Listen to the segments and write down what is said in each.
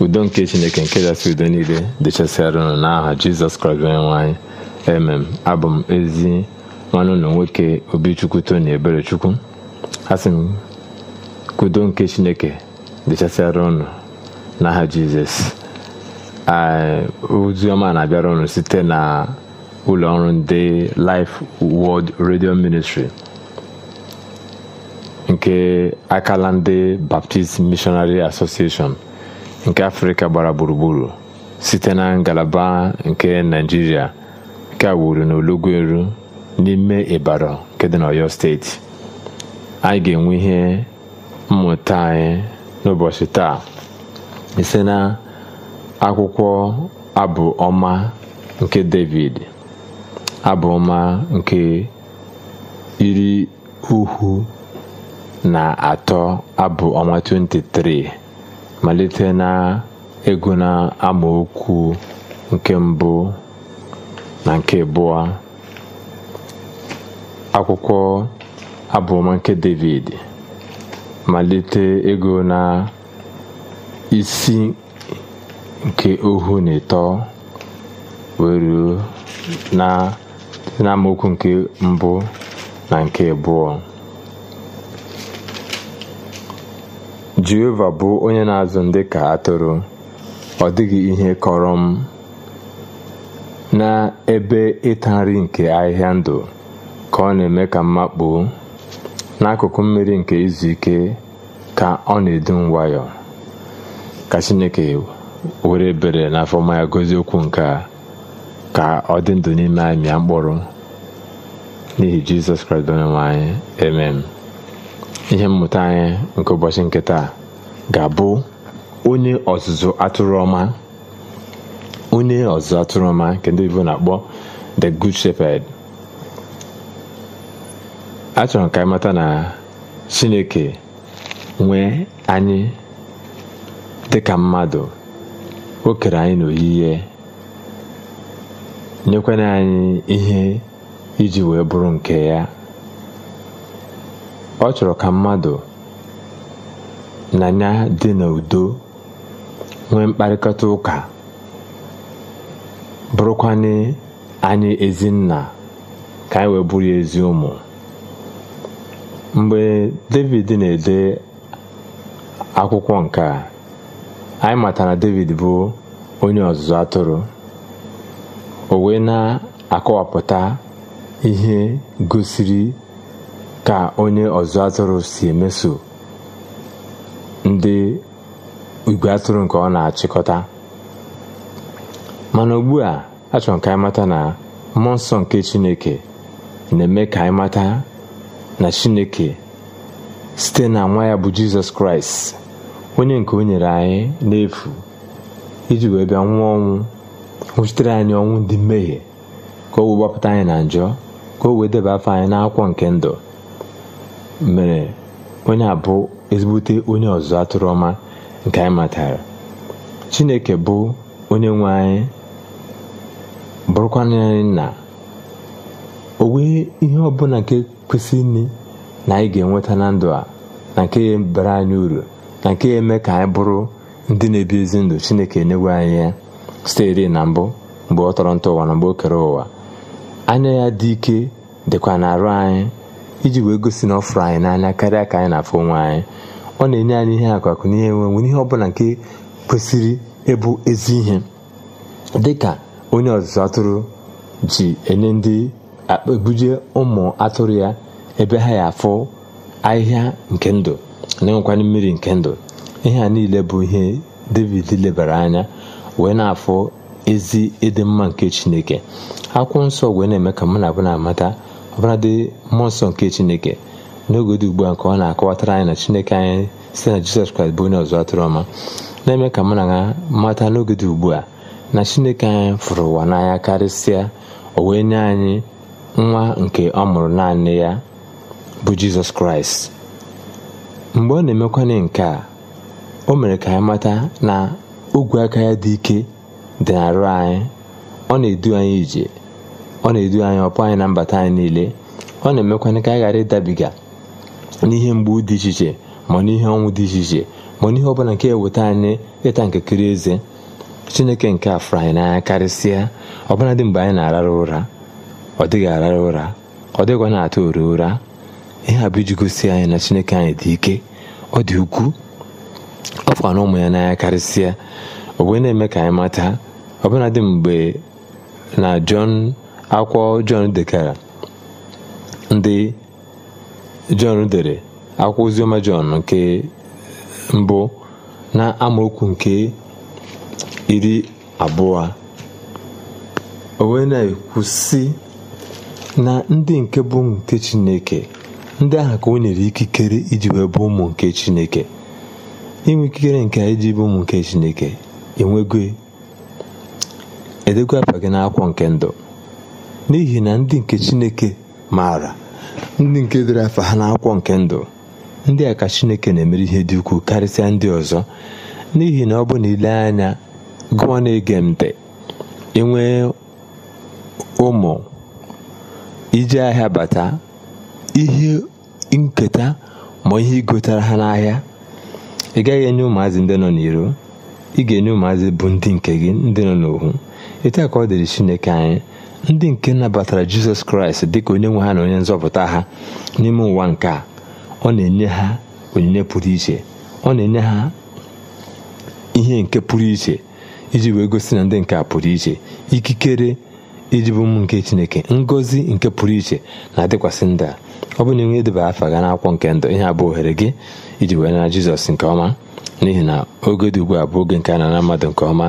udo nke chineke nke dasị udo niile dịchasịara unu n'aha jizọs kraịst onye nwanyị emem abụ m ezi nwanne ụlọ nwoke obichukwu tony eberechukwu asị m kudo nke chineke dịchasịara unu n'aha jizọs ozioma na-abịara ọnụ site na ụlọ ọrụ ndị Life World Radio Ministry nke akala ndị Baptist Missionary Association nke afrịka gbara gburugburu site na ngalaba nke naijiria nke a wuru na n'ime ịbara nke dị n'ọyọ steeti anyị ga-enwe ihe mmụta anyị n'ụbọchị taa ise na akwụkwọ abụ ọma nke david abụ ọma nke iri uhu na atọ abụ ọma 23 malite na ego na amaokwu nke mbụ na nke abụọ akwụkwọ abụọma nke David malite ego na isi nke ohu na ịtọ wee na amaokwu nke mbụ na nke abụọ jehova bụ onye na-azụ ndị ka atụrụ ọ dịghị ihe kọrọ m n'ebe ịta nri nke ahịhịa ndụ ka ọ na-eme ka mmakpuo n'akụkụ mmiri nke izu ike ka ọ na-edu nwayọ ka chineke were ebere n'afọma ya gozie okwu nke a ka ọ dị ndụ n'ime anyị mịa mkpụrụ n'ihi jizọs kraịst onye anyị Ihe mmụta anyị nke ụbọchị nke taa ga-abụ onye ọzụzụ atụrụ ọma onye ọzụzụ atụrụ ọma nke ndị na-akpọ the good shepherd achọrọ m ka anyị mata na Chineke nwee anyị dịka mmadụ o kere anyị ihe nyekwana anyị ihe iji wee bụrụ nke ya ọ chọrọ ka mmadụ na ya dị n'udo nwee mkparịkọta ụka bụrụkwanye anyị ezinna ka anyị wee bụrụ ezi ụmụ mgbe david na-ede akwụkwọ nke a anyị matara david bụ onye ọzụzụ atụrụ o wee na-akọwapụta ihe gosiri ka onye ọzụ atụrụ si emeso ndị igwe atụrụ nke ọ na-achịkọta mana ugbu a achọrọ m ka anyị mata na mmụọ nsọ nke chineke na-eme ka anyị mata na chineke site na nwa ya bụ jizọs kraịst onye nke o nyere anyị n'efu iji wee bịa nwụọ ọnwụ nwụchitere anyị ọnwụ ndị mmehie ka o wee gbapụta anyị na njọ ka o wee deba afọ anyị n'akwụkwọ nke ndụ mere onye a bụ ezigbote onye ọzọ atụrụ ọma nke anyị matara chineke bụ onye nwe anyị bụrụkwa anyị na o nwee ihe ọbụla nke kwesị nne na anyị ga-enweta na ndụ a na nke ya bara anyị uru na nke ya eme ka anyị bụrụ ndị na-ebi ezi ndụ chineke enyewe anyị ya sitere na mbụ mgbe ọ tọrọ ntọ ụwa na mgbe o kere ụwa anya ya dị ike dịkwa na arụ anyị iji wee gosi na ọ fụrụ anyị n'anya karịa ka anyị na-afụ onwe anyị ọ na-enye anyị ihe akụ akụ ihe nwere ihe ọbụla nke kwesịrị ịbụ ezi ihe dị ka onye ọzụzụ atụrụ ji enye ndị ebuje ụmụ atụrụ ya ebe ha ya afụ ahịhịa nke ndụ na-enwekwana mmiri nke ndụ ihe a niile bụ ihe david lebara anya wee na-afụ ezi ịdị mma nke chineke akwụkwọ nsọ wee na-eme ka mụ na abụ na-amata ọbụladị mmụọ nsọ nke chineke n'oge dị ugbu a nke ọ na-akọwatara anyị na chineke anyị site na jizọs kraịst bụ onye ọzọ atụrụ ọma na-eme ka mụ na ha mata n'oge dị ugbu a na chineke anyị fụrụ ụwa n'anya karịsịa o wee nye anyị nwa nke ọ mụrụ naanị ya bụ jizọs kraịst mgbe ọ na-emekwanye nke a o mere ka anyị mata na ogwe aka ya dị ike dị arụ anyị ọ na-edu anyị ije ọ na-edu anyị ọpụ anyị na mbata anyị niile ọ na-emekwana ka anyị ghara ịdabiga n'ihe mgbu dị iche iche ma n'ihe ọnwụ dị iche iche ma n'ihe ọ bụla nke eweta anyị ịta nke kiri eze chineke nke a fụrụ anyị n'anya karịsịa ọbụla dị mgbe anyị na-arara ụra ọ dịghị arara ụra ọ dịghịkwa na-atụ ori ụra ihe a bụ iji gosi anyị na chineke anyị dị ike ọ dị ukwuu ọ fụkwa na ụmụ ya n'anya karịsịa o na-eme ka anyị mata ọbụla dị mgbe na jọn akwọ Jọn dekara ndị Jọn dere akwụkwọ oziọma Jọn nke mbụ na amaokwu nke iri abụọ o na-ekwu sị na ndị nke bụ nke Chineke ndị ahụ ka o nyere ikikere iji bụ ụmụ nke Chineke inwe ikikere nke iji bụ ụmụ nke Chineke enwego edego afa gị n'akwọ nke ndụ n'ihi na ndị nke Chineke maara ndị nke dere afa ha n'akwụkwọ nke ndụ ndị a ka Chineke na-emere ihe dị ukwuu karịsịa ndị ọzọ n'ihi na ọ bụ na ile anya gụọ na-ege ntị enwee ụmụ ije ahịa bata ihe nketa ma ihe ịgotara ha n'ahịa ị gaghị enye ụmụazị ndị nọ n'iro ị ga-enye ụmụazị bụ ndị nke gị ndị nọ n'ohu etu a ka ọ dịrị Chineke anyị ndị nke nabatara jizọs kraịst dị ka onye nwe ha na onye nzọpụta ha n'ime ụwa nke a ọ na-enye ha onyinye pụrụ iche ọ na-enye ha ihe nke pụrụ iche iji wee gosi na ndị nke a pụrụ iche ikikere iji bụ m nke chineke ngọzi nke pụrụ iche na-adịkwasị ndị a ọ bụ na enwe edeba afa ga n'akwụkwọ nke ndụ ihe abụ ohere gị iji wee nara jizọs nke ọma n'ihi na oge dị ugbu a bụ oge nke a nara mmadụ nke ọma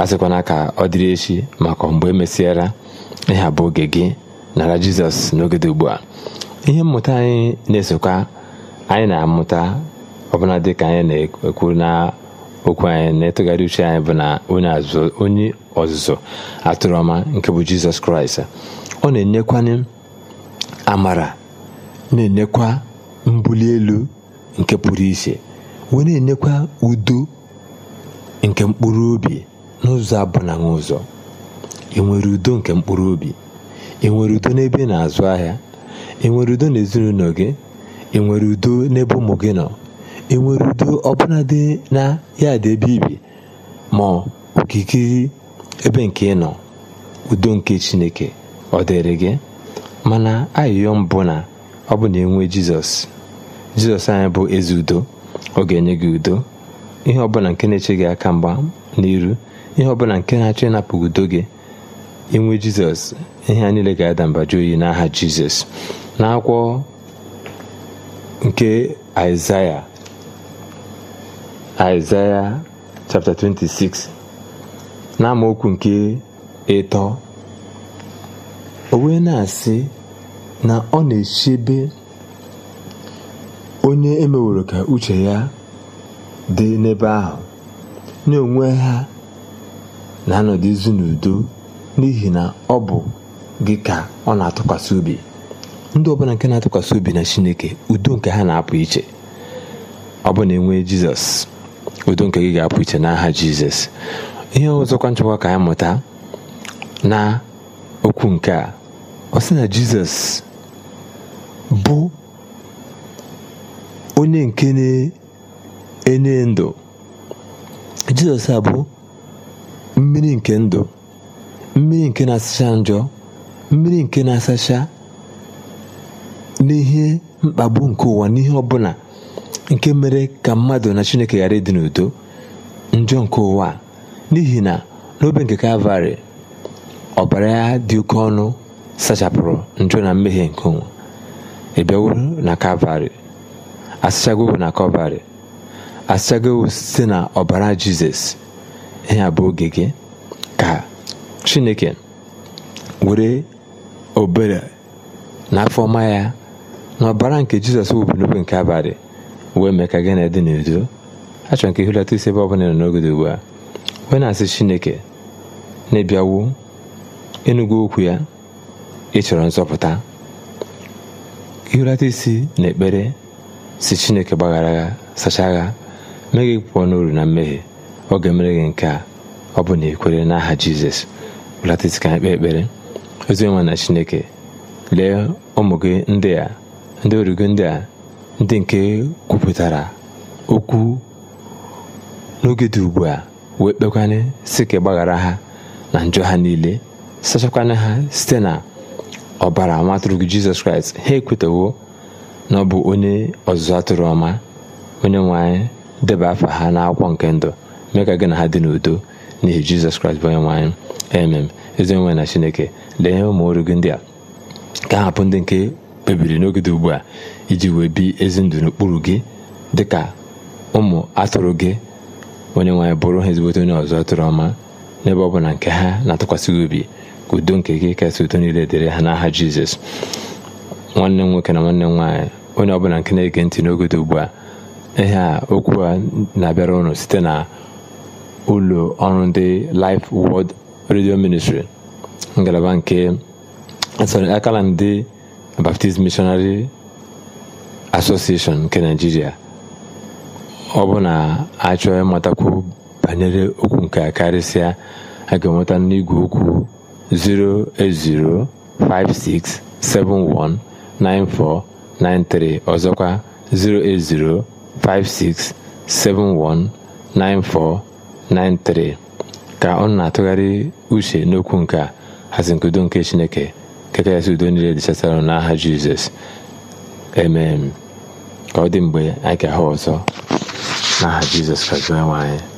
a sịkwana ka ọ dịrị echi maka mgbe emesịara ịha bụ oge gị nara jizọs n'oge dị ugbu a ihe mmụta anyị na-esokwa anyị na-amụta ọbụla dị ka anyị na-ekwu na okwu anyị na-etụgharị uche anyị bụ na onye ọzụzụ atụrụ ọma nke bụ jizọs kraịst ọ na-enyekwanye amara na-enyekwa mbuli elu nke pụrụ iche wee na-enyekwa udo nke mkpụrụ obi n'ụzọ abụnaghị ụzọ enwere udo nke mkpụrụ obi enwere udo n'ebe na-azụ ahịa enwere udo n'ezinụlọ gị enwere udo n'ebe ụmụ gị nọ enwere udo ọbụla dị na ya dị ebe ibi ma okikiri ebe nke ị nọ udo nke chineke ọ dịrị gị mana ayịyọ mbụ na ọ bụ na enwe jizọs jizọs anyị bụ eze udo ọ ga-enye gị udo ihe ọbụla nke na-eche gị aka mgba n'iru ihe ọbụla nke na-achọ ịnapụ udo gị inwe jizọs ihe a niile ga-ada mba oyi n'aha jizọs n'akwụkwọ nke aịzaya aịzaya chapter 26 na amaokwu nke ịtọ o wee na-asị na ọ na-echebe onye emeworo ka uche ya dị n'ebe ahụ na onwe ha na-anọdụzi n'udo n'ihi na ọ bụ gị ka ọ na-atụkwasị obi ndị ọbụla nke na-atụkwasị obi na chineke udo nke ha na-apụ iche ọ bụ na enwe jizọs udo nke gị ga-apụ iche n'aha jizọs ihe ọzọkwa nchekwa ka anyị mụta na okwu nke a ọ sị na jizọs bụ onye nke na-enye ndụ jizọs a bụ mmiri nke ndụ mmiri nke na-asacha njọ mmiri nke na-asacha n'ihe mkpagbu nke ụwa n'ihe ọbụla nke mere ka mmadụ na chineke ghara ịdị n'udo njọ nke ụwa n'ihi na n'obe nke kalvarị ọbara ya dị oke ọnụ sachapụrụ njọ na mmehie nke ụwa ịbịawo na kalvarị asachago na kalvarị site na ọbara jizọs ihe a bụ oge gị ka chineke were obere na afọ ọma ya na ọbara nke jizọs wubunube nke abalị wee mee ka gị na dị n'udo achọrọ nke ihulata isi ebe ọbụla nọ n'oge dị ugbu a wee na-asị chineke na-ebiawo enugo okwu ya ịchọrọ nzọpụta ihulata isi na ekpere si chineke gbaghara agha sachaa agha mee gị pụọ n'uru na mmehie ọ ga-emere gị nke a ọ bụ na ikwere n'aha jizọs bụlatịsị ka anyị kpee ekpere oziọma na chineke lee ụmụ gị ndị a ndị origo ndị a ndị nke kwupụtara okwu n'oge dị ugbu a wee kpekwanye sị ka gbaghara ha na njọ ha niile sachakwanye ha site na ọbara nwa gị jizọs kraịst ha ekwetawo na ọ bụ onye ọzụzụ atụrụ ọma onye nwanyị deba afa ha n'akwụkwọ nke ndụ mee ka gị na ha dị n'udo n'ihi jizọs kraịst bụ onye nwe anyị emem ezi na chineke lee ihe ụmụ ọrụ gị ndị a ka hapụ ndị nke kpebiri n'oge dị ugbu a iji wee bi ezi ndụ n'okpuru gị dị ka ụmụ atụrụ gị onye nwe bụrụ ha ezigbote onye ọzọ atụrụ ọma n'ebe ọ bụla nke ha na-atụkwasị gị obi ka udo nke gị kasị udo niile dịrị ha n'aha jizọs nwanne m nwoke na nwanne m nwaanyị onye ọbụla nke na-ege ntị n'oge ugbu a ihe a okwu a na-abịara ụnụ site na ụlọ ọrụ ndị Life World Radio Ministry ngalaba nke sorry akala ndị Baptist Missionary Association nke Nigeria ọ bụ na achọọ ịmatakwu banyere okwu nke karịsịa a ga-enweta n'igwe okwu 08056719493 ọzọkwa 08056719493 93 ka ọ na-atụgharị uche n'okwu nke a hazi nke chineke keke ya si udo niile dịchasara n'aha jizọs emem ka ọ dị mgbe anyị ga-ahụ ọzọ n'aha jizọs ka onye nwe